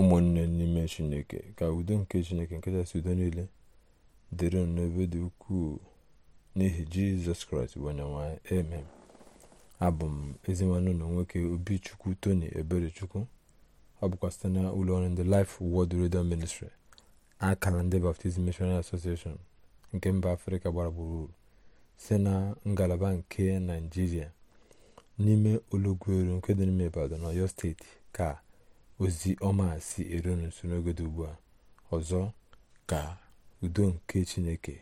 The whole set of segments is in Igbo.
ụmụnne n'ime chineke ka udo nke chineke nke kachasị udo niile dịrị n'ebe dị ukwuu n'ihi jizọs kraịst bụ onyenwe amen abụ m ezinwanne ụlọ nwoke obichukwu tony eberechukwu ọ bụkwa site na ụlọọrụ ndị life word radio ministry akara ndị baptizim missionary association nke mba afrịka gbara gburugburu site na ngalaba nke naijiria n'ime olọgwueru nke dị n'ime ibadan ọyọ steeti ka ozi ọma si eru nso n'oge dị ugbu a ọzọ ka udo nke chineke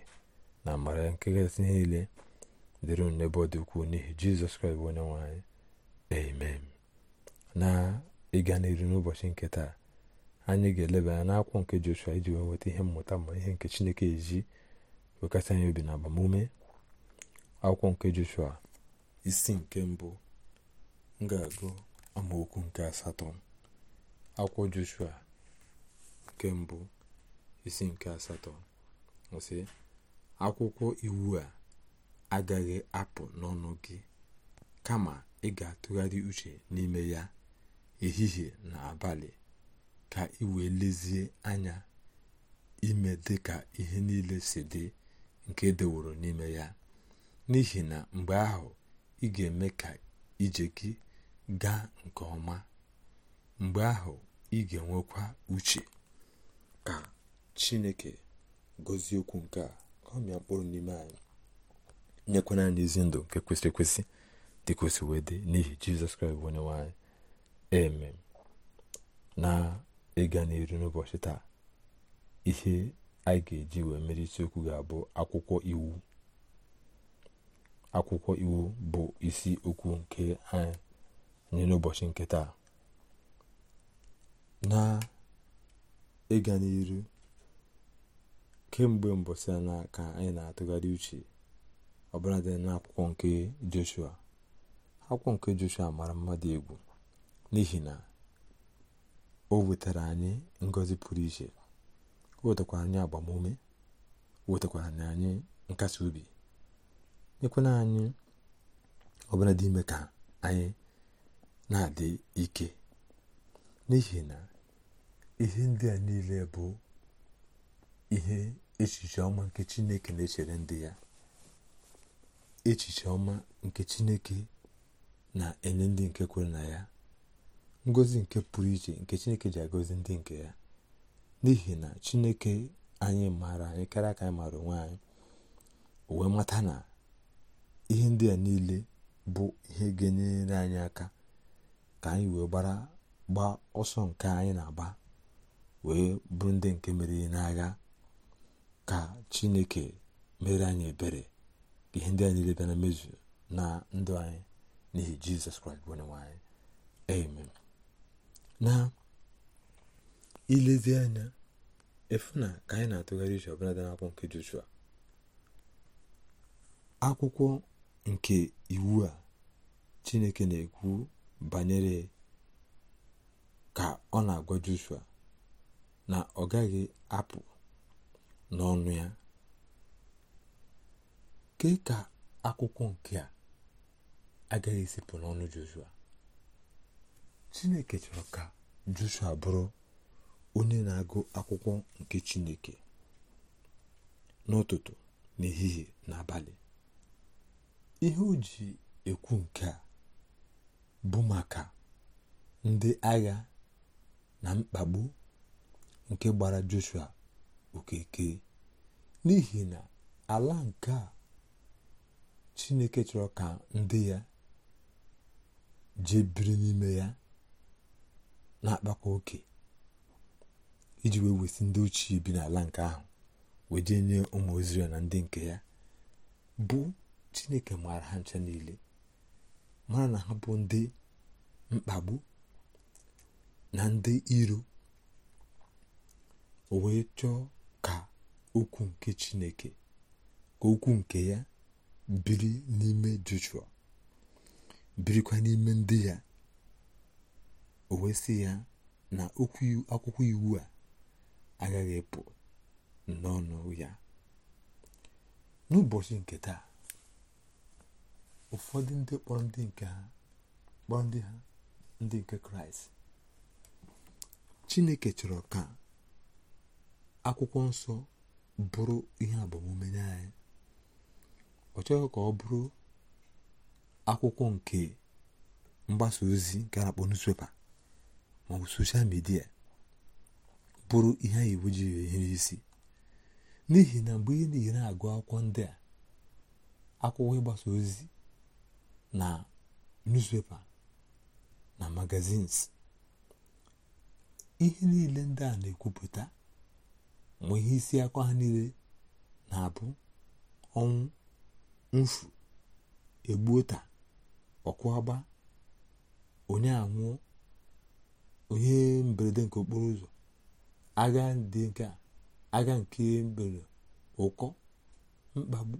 na amara nke gasị niile dịrị n'ebe ọ dị ukwuu n'ihi jizọs kraịst bụ onye nwe anyị amen na ịga n'iru n'ụbọchị nke taa anyị ga-eleba anya n'akwụkwọ nke joshua iji wee nweta ihe mmụta ma ihe nke chineke eji wekasị anya obi na agbamume akwụkwọ nke joshua isi nke mbụ m ga-agụ amaokwu nke asatọ akwụkwọ joshua nke mbụ isi nke asatọ akwụkwọ iwu a agaghị apụ n'ọnụ gị kama ị ga-atụgharị uche n'ime ya ehihie na abalị ka ị wee lezie anya ime dị ka ihe niile si dị nke edeworo n'ime ya n'ihi na mgbe ahụ ị ga-eme ka ije gị gaa nke ọma mgbe ahụ ị ga-enwekwa uche ka chineke gọzie okwu nke a ka ọmịa mkpụrụ n'ime anyị nyekwana anyị ezi ndụ nke kwesịrị ekwesị dị kwesị wee dị n'ihi jizọs kraịst onye nwanyị anyị eme na ịga n'iru n'ụbọchị taa ihe anyị ga-eji wee mere isiokwu ga-abụ akwụkwọ iwu akwụkwọ iwu bụ isi okwu nke anyị n'ụbọchị nke taa na ịga n'iru kemgbe mbọsị na ka anyị na-atụgharị uche ọbụladị n'akwụkwọ nke joshua akwụkwọ nke joshua mara mmadụ egwu n'ihi na o wetara anyị ngozi pụrụ iche o wetakwara anyị agbamume o wetakwara anyị nkasi obi nyekwana anyị ọbụla dị ime ka anyị na-adị ike n'ihi na ihe ndị a niile bụ ihe echiche ọma nke chineke na-echere ndị ya echiche ọma nke chineke na-enye ndị nke kwere na ya ngozi nke pụrụ iche nke chineke ji agozi ndị nke ya n'ihi na chineke anyị maara anyị karịa ka anyị maara onwe anyị wee mata na ihe ndị a niile bụ ihe ga-enyere anyị aka ka anyị wee gbaa ọsọ nke anyị na-agba wee bụrụ ndị nke meriri n'agha ka chineke mere anyị ebere ka ihe ndị a niile bịa na mmezu na ndụ anyị n'ihi jizọs kraịst bụ onyenwe anyị amen na ilezi anya efu na ka anyị na-atụgharị uche ọbụla dị n'akwụkwọ nke joshua akwụkwọ nke iwu a chineke na-ekwu banyere ka ọ na-agwa joshua na ọ gaghị apụ n'ọnụ ya kee ka akwụkwọ nke a agaghị esipụ n'ọnụ Joshua Chineke chọrọ ka Joshua bụrụ onye na-agụ akwụkwọ nke Chineke n'ụtụtụ n'ehihie n'abalị ihe o ji ekwu nke a bụ maka ndị agha na mkpagbu nke gbara joshua okeke n'ihi na ala nke a chineke chọrọ ka ndị ya jee biri n'ime ya na-akpakwa oke iji wee wesị ndị ochie bi n'ala nke ahụ wee jee nye ụmụ Izrel na ndị nke ya bụ chineke maara ha ncha niile mara na ha bụ ndị mkpagbu na ndị iro o wee chọọ ka okwu nke chineke ka okwu nke ya biri n'ime joshua birikwa n'ime ndị ya o wee sị ya na okwu akwụkwọ iwu a agaghị pụ n'ọnụ ya n'ụbọchị nke taa ụfọdụ ndị kpọrọ ndị nke ha kpọrọ ndị ha ndị nke kraịst chineke chọrọ ka akwụkwọ nsọ bụrụ ihe agbamume nye anyị ọ chọghị ka ọ bụrụ akwụkwọ nke mgbasa ozi nke a na-akpọ newspaper ma ọ bụ soshal midia bụrụ ihe anyị iwu ji ihe isi n'ihi na mgbe ị na-ere agụ akwụkwọ ndị a akwụkwọ ịgbasa ozi na newspaper na magazins ihe niile ndị a na-ekwupụta mgbe ihe isi akwa ha niile na-abụ ọnwụ mfu egbuota ọkwụagba onye anwụọ onye mberede nke okporo ụzọ agha dị nke a agha nke mberede ụkọ mkpagbu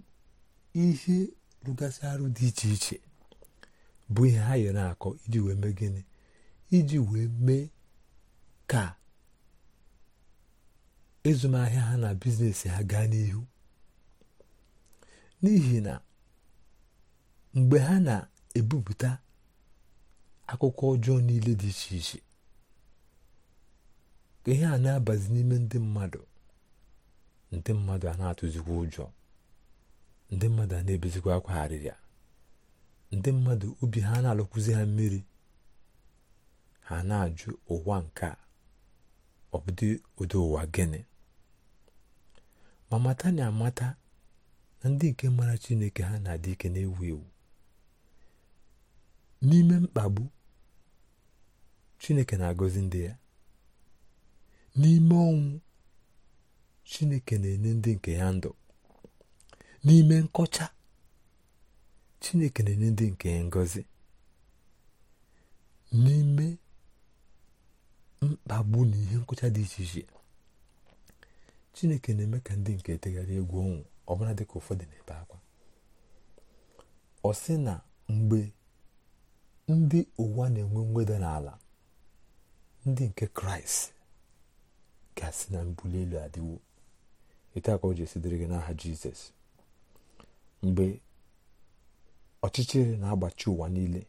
ihe rụgasị arụ dị iche iche bụ ihe ha yere akọ iji wee mee gịnị iji wee mee ka ezumahịa ha na biznes ha gaa n'ihu n'ihi na mgbe ha na-ebupụta akụkọ ọjọọ niile dị iche iche ka ihe a na-abazi n'ime ndị mmadụ ndị mmadụ a na-atụzikwa ụjọ ndị mmadụ a na-ebezikwa akwa arịrịa ndị mmadụ obi ha na-alụkwụzi ha mmiri ha na-ajụ ụwa nke a ọ bụdị ụdị ụwa gịnị ma mata na amata na ndị nke mara chineke ha na-adị ike na-ewu ewu n'ime mkpagbu chineke na-agọzi ndị ya n'ime ọnwụ chineke na-enye ndị nke ya ndụ n'ime nkọcha chineke na-enye ndị nke ya ngọzi n'ime mkpagbu na ihe nkọcha dị iche iche chineke na-eme ka ndị nke tegharị egwu ọnwụ ọbụla dịka ụfọdụ na-ebe akwa ọ sị na mgbe ndị ụwa na-enwe mweda n'ala ndị nke kraịst ga asi na mbuli elu adịwo ete ka o ji esidere gị n'aha jizọs mgbe ọchịchịrị na-agbachi ụwa niile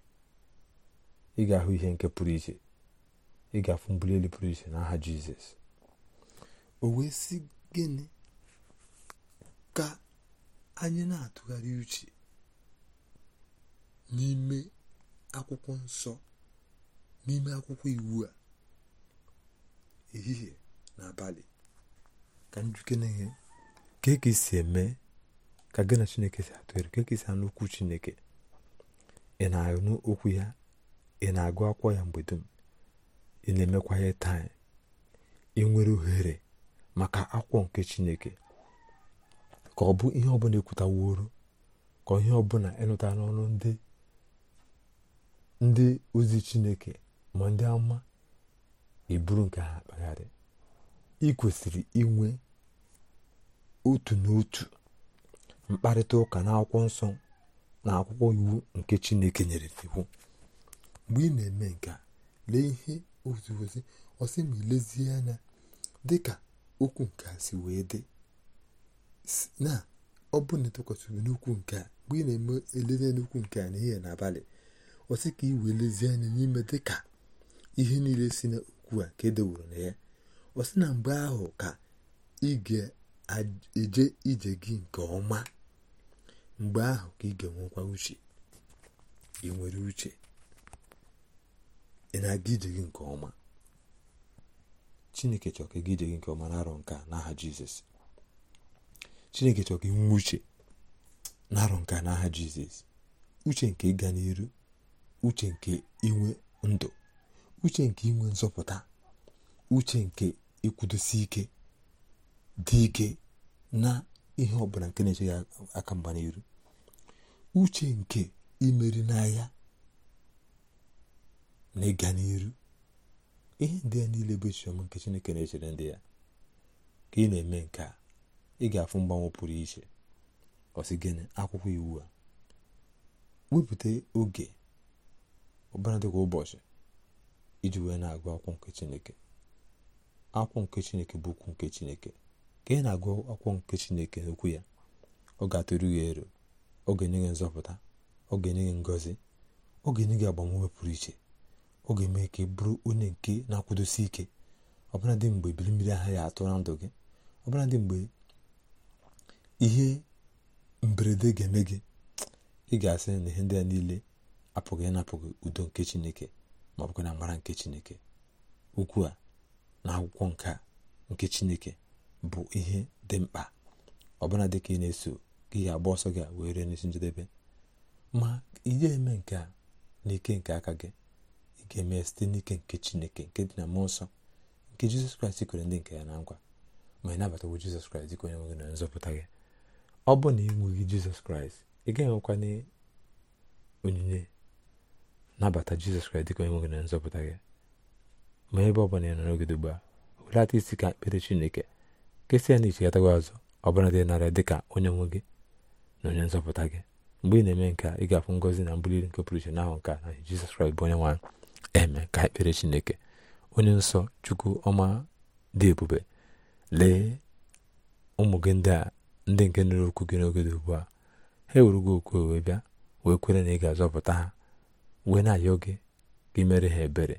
ị ga-ahụ ihe nke pụrụ iche ị ga-afụ mbuli elu pụrụ iche n'aha jizọs o wee sị gịnị ka anyị na-atụgharị uche n'ime akwụkwọ nsọ n'ime akwụkwọ iwu a ehihie na abalị ka njuke na ka esi e eme ka gị chineke si atụgharị ka e ka esi anụ okwu chineke ị na-anụ okwu ya ị na-agụ akwụkwọ ya mgbe dum ị na-emekwa ya taa ị nwere ohere maka akwụkwọ nke chineke ka ọ bụ ihe ọ ọbụla ekwutaworo ka ọ ihe ọ ọbụla ịnụta n'ọnụ ndị ndị ozi chineke ma ndị ama eburu nke ha akpagharị ị kwesịrị inwe otu n'otu mkparịta ụka na akwụkwọ nsọ na akwụkwọ iwu nke chineke nyere iwu mgbe ị na-eme nke lee ihe ozi ozi ọsị ma ilezie anya dịka okwu nke a si wee dị na ọ bụ na ịtụkwasịrị n'ukwu nke a mgbe ị na-eme elezi n'ukwu nke a n'ihe n'abalị ọsị ka ị wee lezie anya n'ime dị ka ihe niile si n'okwu a ka edewuru na ya ọsị na mgbe ahụ ka ị ga-eje ije gị nke ọma mgbe ahụ ka ị ga-enwekwa uche ị nwere uche ị na-aga ije gị nke ọma chineke chọrọ ka ije gị nke ọma na-arọ nka n'aha jizọs chineke chọrọ ka uche na-arọ nka n'aha jizọs uche nke ịga n'iru uche nke inwe ndụ uche nke inwe nzọpụta uche nke ịkwụdosi ike dị ike na ihe ọbụla nke na-eche aka mgba n'iru uche nke imeri n'ahịa na ịga n'iru ihe ndị ya niile bụ echiche nke chineke na-echere ndị ya ka ị na-eme nke a ị ga-afụ mgbanwe pụrụ iche ọsị gịnị akwụkwọ iwu a wepụta oge ụbara dịka ụbọchị iji wee na-agụ akwụkwọ nke chineke akwụkwọ nke chineke bụ okwu nke chineke ka ị na-agụ akwụkwọ nke chineke n'okwu ya ọ ga-atụrụ ya ero ọ ga-enye gị nzọpụta ọ ga-enye gị ngọzi ọ ga-enye gị agbamume pụrụ iche ọ ga-eme ka bụrụ onye nke na-akwụdosi ike ọbụladị mgbe ebili mmiri aha ya atụ na ndụ gị ọbụladị mgbe ihe mberede ga-eme gị ị ga-asị na ihe ndị a niile apụghị ịnapụghị udo nke chineke ma ọ bụkwa na amara nke chineke ukwu a na akwụkwọ nke nke chineke bụ ihe dị mkpa ọbụla dị ka ị na-eso ka ga agba ọsọ gị wee ree n'isi njedebe ma ihe eme nke a n'ike nke aka gị ga mee site n'ike nke chineke nke dị na mmụọ nsọ nke jizọs kraịst kwere ndị nke ya na nkwa ma ị nabatawo jizọs kraịst ka onye nwe na nzọpụta gị ọ bụ na enweghị jizọs kraịst ị gaghị enwekwa onyinye nabata jizọs kraịst dịka onye nwe gị na nzọpụta gị ma ebe ọ bụla ya nọ n'ogede ugbu a welata isi ka mkpere chineke kesịa na icheghataghị azụ ọbụla dị narị dị ka onye nwe gị na onye nzọpụta gị mgbe ị na-eme nke a ị ga-afụ ngọzi na mbuli nke pụrụ iche n'ahụ nke a na jizọs kraịst bụ onye nwaanyị eme ka ekpere chineke onye nsọ chukwu ọma dị ebube lee ụmụ gị ndị a ndị nke nụrụ okwu gị n'oge dị ugbu a ha ewuru gị okwu wee bịa wee kwere na ị ga-azọpụta ha wee na-ayọ gị gị mere ha ebere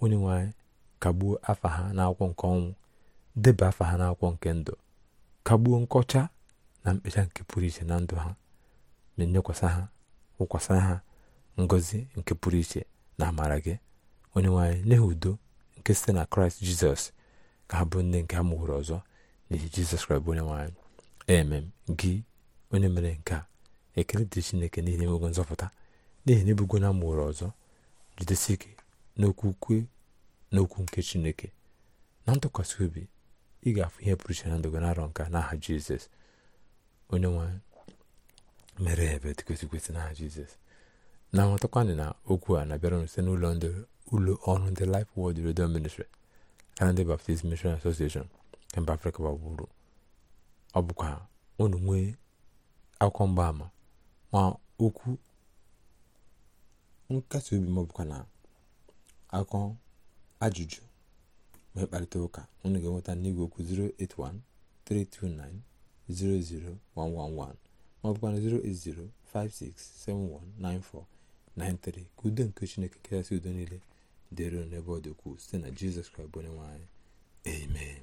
onye nwanyị kagbuo afa ha n'akwụkwọ nke ọnwụ deba afa ha n'akwụkwọ nke ndụ kagbuo nkọcha na mkpecha nke pụrụ iche na ndụ ha ma enyekwasị ha wụkwasa ha ngọzi nke pụrụ iche na amara gị onye nwanyị nye udo nke site na kraịst jizọs ka ha bụ nne nke a mụgworo ọzọ n'ihi jizọs kraịst bụ onye nwanyị emem gị onye mere nke a ekele dị chineke n'ihi na enwego nzọpụta n'ihi na ebugo na ọzọ jidesi ike n'okwukwe n'okwu nke chineke na ntụkwasị obi ị ga-afụ ihe pụrụ iche na ndụ gị narọ nka n'aha jizọs onye nwanyị mere ebe dịkwesịkwesị n'aha jizọs na-amatakwanị na okwu a na-abịara site n'ụlọ ndị ụlọ ọrụ ndị Life Word Radio Ministry na ndị Baptist Mission Association mba Afrịka gbagburu ọ bụkwa nwee akwụkwọ ma okwu nkasi obi ma ọbụkwa na akọ ajụjụ ma mkparịta ụka unu ga-enweta n'igwe okwu 08132900111 ma bụkwa na 08056719493 ka udo nke Chineke kachasị udo niile dịrị n'ebe ọ dị ukwuu site na jizọs kraịst bụ onye nwe amen